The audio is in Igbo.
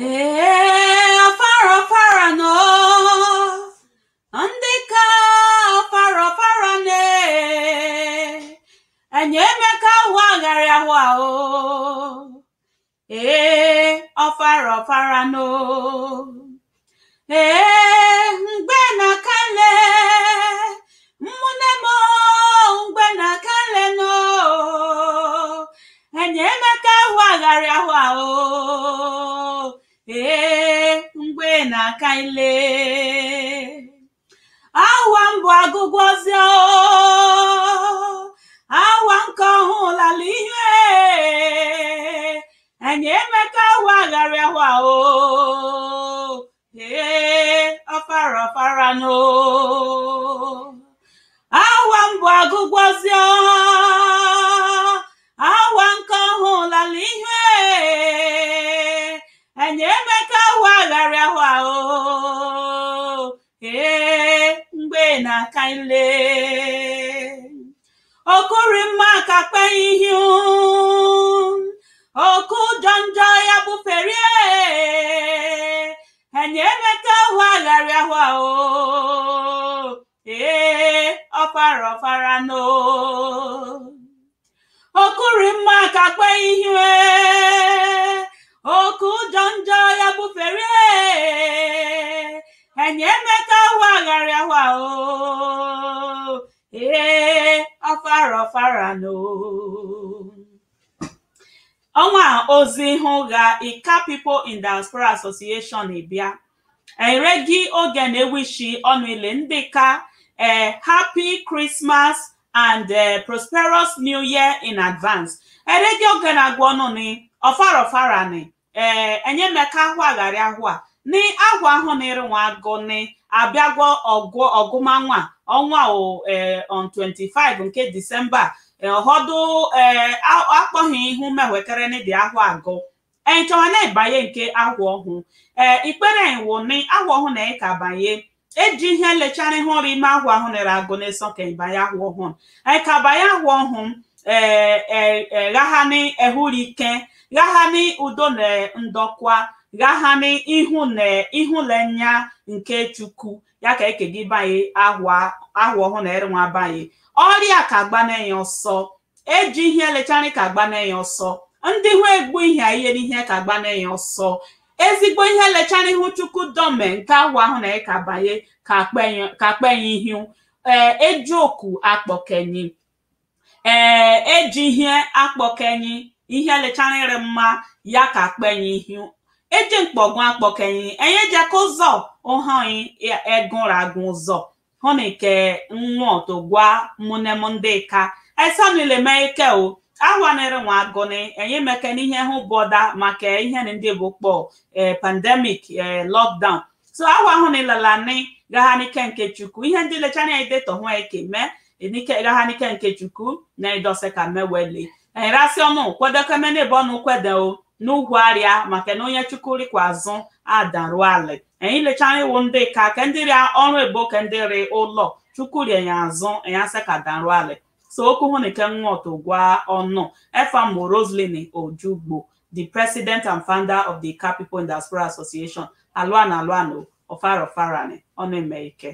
ee ọfara ọfara nọ ndị ka ọfara ọfara na ee, enyemaka ụwa agharị ahụ ahụ ee ọfara ọfara nọ ee mgbe na kale mmụne m mgbe na kale nọ enyemaka ụwa ahụ oh. ahụ ahụ ka anyị lee awa mbụ agụgwọzie awa nke lala ihe enye emeka awa agharịawa o ee ọfara ọfara n'o na-aka ile okuri mma ka kpe ihu oku ụjọ njọ ya bufere enye emeka ahụ agharị ahụ ahụ ee ọfara ọfara no okuri mma emeka agharị ahụ oo ee ọfara ọfara no ọnwa ozi hụ ga ika people in diaspora association bịa ere gị oge na-ewishi ọnụ ile ndị ka ee eh, happy christmas and uh, prosperous new year in advance ere gị oge na-agwa ọnụ ni ọfara ọfara ni ee eh, ahụ agharị ahụ a nị agwa ahụ nịrị nwa agụ nị abịagwo ọgụ ọgụmanwa ọnwa e, on 25 nke disemba e, ọhọdụ e, akpọghị ihu mewekere dị ahụ agụ enchọwa na-ebanye nke agwa ọhụ ee ikpere iwu ni agwa ọhụ na ka banye eji ihe lechara ihe ọrụ ime agwa ahụ na-ere agụ n'ịsọ ka ịbanye agwa ọhụ ka banye agwa ọhụ ee eghahani ehurike ghahani udo na ndọkwa na ihụlenya nke chukwu ya ka ekegibanye ahụ ọhụụ na nwa banye ọrịa ka gbanenye ọsọ eji ihe lechari ka gbanenye ọsọ ndị hụ egbu ihe ihere ihe ka gbanenye ọsọ ezigbo ihe lechara ihu chukwu dome nke ahụ ahụ na ka banye ka kpenye ihu e, eji oku akpọkenyi ee eji ihe akpọkenyi ihe lechara ịrị mma ya ka kpenye ihu ejemkpọgún akpọkẹyìn ẹ̀yin ẹja kó zọ ó hàn yín ẹgúnragún zọ họnìkẹ nwọ tó gwa mụnemụndị ka esanileme ike o awanere nwa agụnị enye meke n'ihe hụ bọda maka ihe ndị bụ kpọ e, pandemic e, lockdown so awa hụ gagha nike nke chukwu ihe ndị lechana edeto hụ eke mee n'ike nke chukwu na idose ka meweli enyerasị ọnụ kwedokemenebe ọnụ kwede n'ugwu arịa maka na onye kwa azụ adarụ ala. anyị lechara iwu ndị ka ke ndị rịa ọrụ ebo ke ndị rị ụlọ chukwurie ya azụ ya sị ka darụ ala. so okwu hụ na ikenwọtụ gwa ọnụ efamo roselyn ojugbo the president and founder of the Car People in Diaspora Association alụana alụana ofarofara ọnụ eme ike